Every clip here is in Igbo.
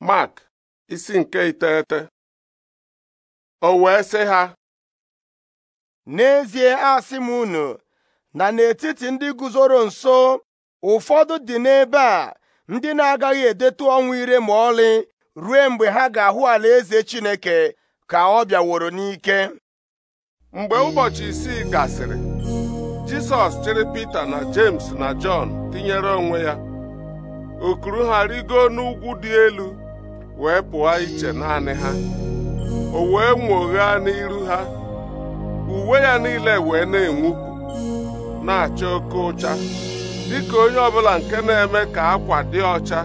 Mark isi nke iteghete o wee sị ha n'ezie asị m unu na n'etiti ndị guzoro nso ụfọdụ dị n'ebe a ndị na-agaghị edetu ọnwụ ire ma ọlị ruo mgbe ha ga-ahụ ala eze Chineke ka ọ bịaworo n'ike mgbe ụbọchị isii gasịrị Jisọs chịrị Pita na James na Jọn tinyere onwe ya okuru ha rigo n'ugwu dị elu wee pụọ iche naanị ha o wee nwoghaa n'iru ha uwe ya niile wee na-enwupụ na-acha oke ụcha dịka onye ọbụla nke na-eme ka akwa dị ọcha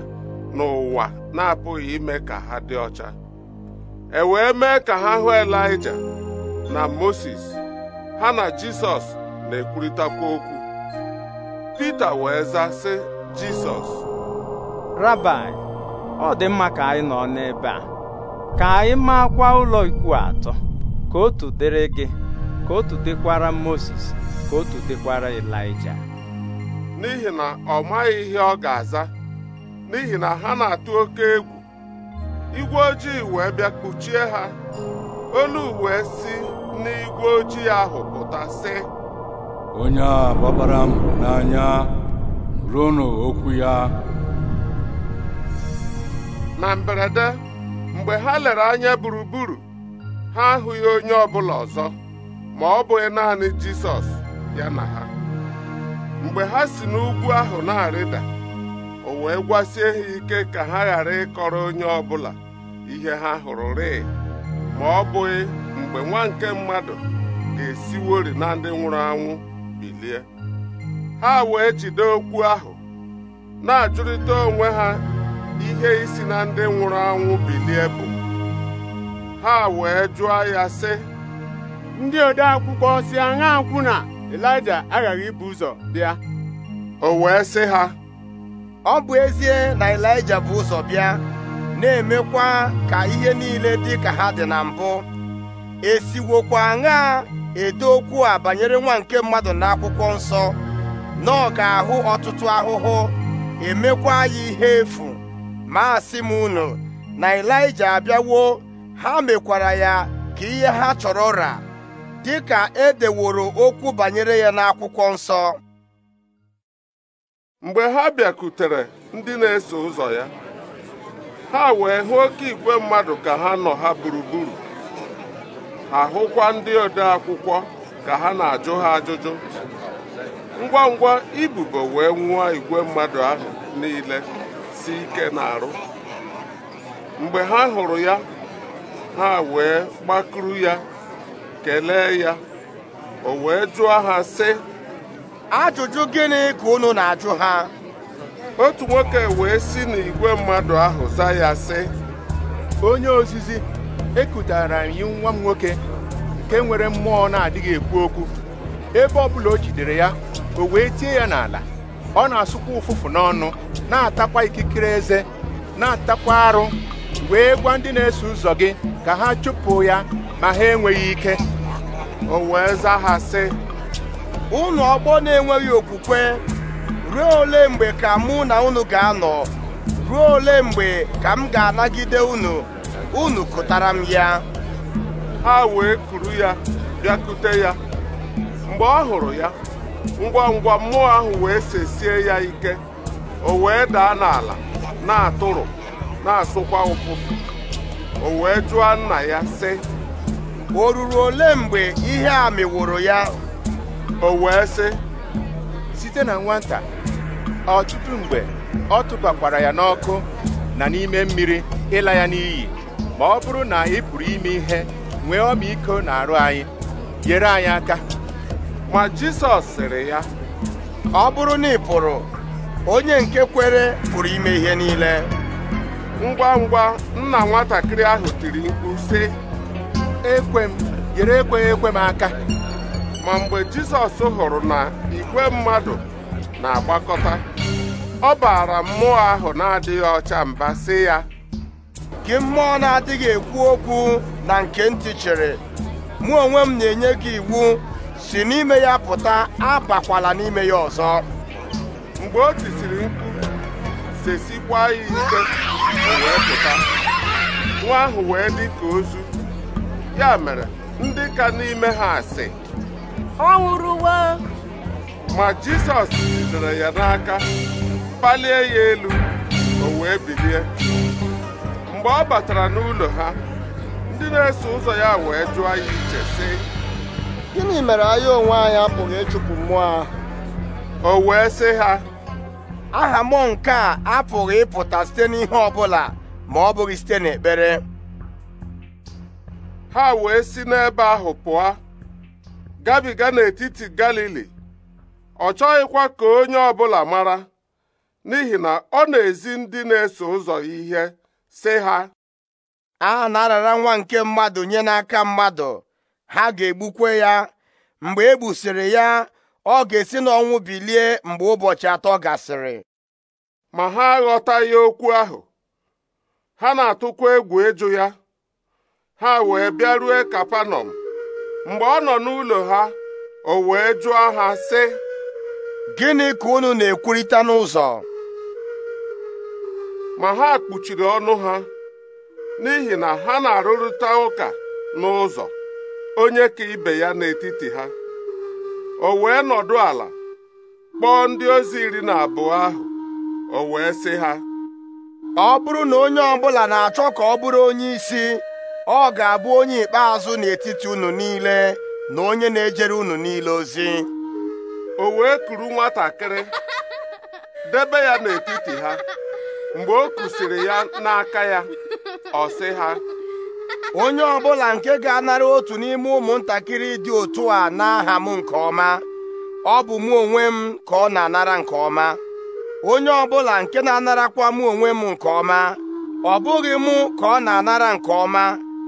n'ụwa na-apụghị ime ka ha dị ọcha e wee mee ka ha hụ Elaịja na Moses ha na Jisọs na-ekwurịtakwa okwu Pita wee zaa, sị Jisọs Rabai ọ dị mma ka anyị nọ n'ebe a ka anyị maakwa ụlọ ikwu atọ ka otu dịrị gị ka otu dịkwara Moses ka otu dịkwara Elija n'ihi na ọ maghị ihe ọ ga-aza n'ihi na ha na-atụ oke egwu igwe ojii wee bịa kpuchie ha olu wee si n'igwe ojii ahụ pụta onye a gbabara m n'anya ruo n'okwu ya na mberede mgbe ha lere anya gburugburu ha ahụghị onye ọbụla ọzọ ma ọ bụghị naanị Jisọs ya na ha mgbe ha si n'ugwu ahụ na-arịda o wee gwasie ha ike ka ha ghara ịkọrọ onye ọbụla ihe ha hụrụ rịị ma ọ bụghị mgbe nwa nke mmadụ ga-esiwori na ndị nwụrụ anwụ bilie ha wee jide okwu ahụ na-ajụrịta onwe ha ihe isi na ndị nwụrụ anwụ bilie bụ ha wee jụọ ya sị ndị ode akwụkwọ si aṅa na elija aghaghị ibu ụzọ bịa o wee sị ha ọ bụ ezie na elija bụ ụzọ bịa na-emekwa ka ihe niile dị ka ha dị na mbụ esiwokwa aṅa ede okwu a banyere nwa nke mmadụ na akwụkwọ nsọ na ọ ahụ ọtụtụ ahụhụ emekwa ya ihe efu Maasị asị m unu na Ịlaịja abịawo ha mekwara ya ka ihe ha chọrọ ra dịka e deworo okwu banyere ya n'akwụkwọ nsọ mgbe ha bịakutere ndị na-eso ụzọ ya ha wee hụ oke igwe mmadụ ka ha nọ ha gburugburu Ahụkwa ndị ode akwụkwọ ka ha na-ajụ ha ajụjụ ngwa ngwa ibubo wee nwụọ igwe mmadụ ahụ niile si ike n'arụ mgbe ha hụrụ ya ha wee gbakuru ya kelee ya o wee jụọ ha sị ajụjụ gịnị ka unu na-ajụ ha otu nwoke wee si n'igwe mmadụ ahụ za ya sị onye ozizi ekutara anyị nwa m nwoke nke nwere mmụọ na-adịghị ekwu okwu ebe ọ bụla o jidere ya o wee tie ya n'ala ọ na-asụkwa ụfụfụ n'ọnụ na-atakwa ikikere eze na-atakwa arụ wee gwa ndị na-eso ụzọ gị ka ha chụpụ ya ma ha enweghị ike o wee zaa ha sị ọgbọ na-enweghị okwukwe ruo ole mgbe ka mụ na unu ga-anọ ruo ole mgbe ka m ga-anagide unu unu kụtara m ya ha wee kuru ya bịakute ya mgbe ọ hụrụ ya ngwa ngwa mmụọ ahụ wee sesie ya ike o wee daa n'ala na-atụrụ na-asụkwa ụfụfụ o wee jụọ nna ya sị o ruru ole mgbe ihe a mịwụrụ ya o wee sị site na nwata ọtụtụ mgbe ọ tụbakwara ya n'ọkụ na n'ime mmiri ịla ya n'iyi ma ọ bụrụ na ị pụrụ ime ihe nwee ọmịiko na arụ anyị nyere anyị aka ma Jizọs sịrị ya ọ bụrụ na ị pụrụ onye nke kwere pụrụ ime ihe niile ngwa ngwa nna nwatakịrị ahụ tiri mkpu sị ekwe m yere ekweghị ekwe m aka ma mgbe Jizọs hụrụ na igwe mmadụ na-agbakọta ọ baara mmụọ ahụ na-adịghị ọcha mba sị ya gị mmụọ na-adịghị ekwu okwu na nke ntị chịrị mụ onwe m na-enye gị iwu si n'ime ya pụta abakwala n'ime ya ọzọ mgbe o tisiri mkpu sesikwa ya ike wee pụta nwa ahụ wee dị ka ozu ya mere ndị ka n'ime ha asị ọ nwụrụwa ma jisọs jidere ya n'aka kpalie ya elu o wee bilie mgbe ọ batara n'ụlọ ha ndị na-eso ụzọ ya wee jụọ ya iche sị gịnị mere anyị onwe anyị apụghị ịchụpụ mmụọ ahụ o wee sị ha aha mụ nke a apụghị ịpụta site n'ihe ọbụla ma ọ bụghị site n'ekpere ha wee si n'ebe ahụ pụọ gabiga n'etiti Galili ọ chọghịkwa ka onye ọbụla mara n'ihi na ọ na-ezi ndị na-eso ụzọ ihe sị ha aha na-arara nwa nke mmadụ nye n'aka mmadụ ha ga-egbukwe ya mgbe e gbusiri ya ọ ga-esi n'ọnwụ bilie mgbe ụbọchị atọ gasịrị ma ha aghọtaghị okwu ahụ ha na-atụkwa egwu ịjụ ya ha wee bịaruo kapanọm mgbe ọ nọ n'ụlọ ha o wee jụọ ha sị gịnị ka unu na-ekwurịta n'ụzọ ma ha kpuchiri ọnụ ha n'ihi na ha na-arụrịta ụka n'ụzọ onye ka ibe ya n'etiti ha o wee nọdụ ala kpọọ ndị ozi iri na abụọ ahụ o wee sị ha ọ bụrụ na onye ọbụla na-achọ ka ọ bụrụ onye isi ọ ga-abụ onye ikpeazụ n'etiti unu niile na onye na-ejere unu niile ozi o wee kuru nwatakịrị debe ya n'etiti ha mgbe o kusiri ya n'aka ya ọ sị ha onye ọbụla nke ga-anara otu n'ime ụmụntakịrị dị otu a n'aha m nke ọma ọ bụ mụ onwe m ka ọ na-anara nke ọma onye ọbụla nke na-anarakwa mụ onwe m nke ọma ọ bụghị mụ ka ọ na-anara nke ọma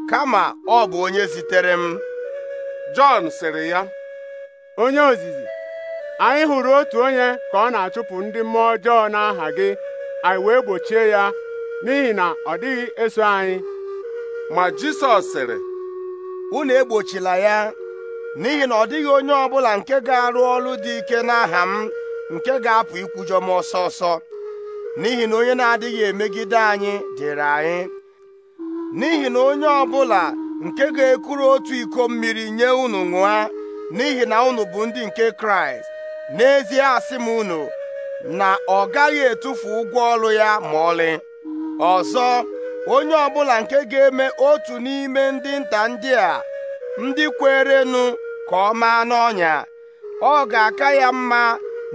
kama ọ bụ onye zitere m Jọn sịrị ya onye ozizi anyị hụrụ otu onye ka ọ na-achụpụ ndị mmụọ ọjọọ n'aha gị anyị wee gbochie ya n'ihi na ọ dịghị eso anyị ma Jisọs sịrị unu egbochila ya n'ihi na ọ dịghị onye ọbụla nke ga-arụ ọrụ dị ike n'aha m nke ga-apụ ikwujọ m ọsọ ọsọ n'ihi na onye na-adịghị emegide anyị dịrị anyị n'ihi na onye ọbụla nke ga-ekuru otu iko mmiri nye unu ṅụa n'ihi na unu bụ ndị nke Kraịst n'ezie asị m unu na ọ gaghị etufu ụgwọ ọrụ ya ma ọlị ọzọ onye ọbụla nke ga-eme otu n'ime ndị nta ndị a ndị kwerenụ ka ọ maa n'ọnya ọ ga-aka ya mma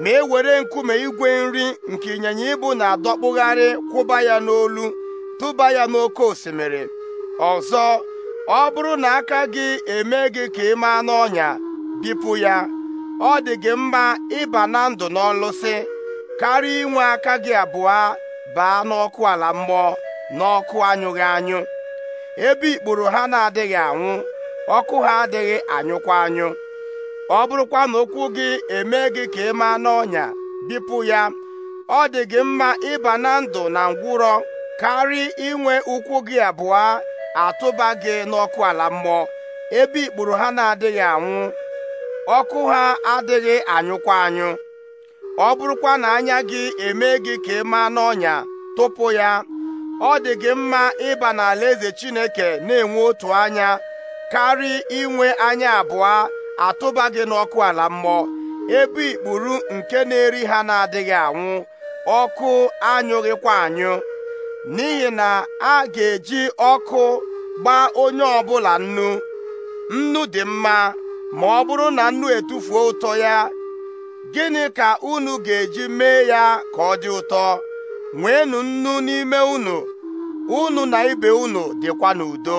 ma e were nkume igwe nri nke ịnyịnya ibu na-adọkpụgharị kwụba ya n'olu tụba ya n'oke osimiri ọzọ ọ bụrụ na aka gị eme gị ka ị maa n'ọnya bipụ ya ọ dị gị mma ịba na ndụ n'ọlụsị karịa inwe aka gị abụọ baa n'ọkụ ala mmụọ n'ọkụ anyụghị anyụ ebe ikpuru ha na-adịghị anwụ ọkụ ha adịghị anyụkwa anyụ ọ bụrụkwa na okwu gị eme gị ka ị maa n'ọnya bipụ ya ọ dị gị mma ịba na ndụ na ngwụrọ karịa inwe ụkwụ gị abụọ atụba gị n'ọkụ ala mmụọ ebe ikporo ha na-adịghị anwụ ọkụ ha adịghị anyụkwa anyụ ọ bụrụkwa na anya gị eme gị ka ị maa n'ọnya tụpụ ya ọ dị gị mma ịba n'ala eze Chineke na-enwe otu anya karị inwe anya abụọ atụba gị n'ọkụ ala mmụọ ebe ikpuru nke na-eri ha na-adịghị anwụ ọkụ anyụghịkwa anyụ n'ihi na a ga-eji ọkụ gbaa onye ọbụla nnu nnu dị mma ma ọ bụrụ na nnu etufuo ụtọ ya gịnị ka unu ga-eji mee ya ka ọ dị ụtọ nweenụ nnu n'ime unu unu na ibe unu dịkwa n'udo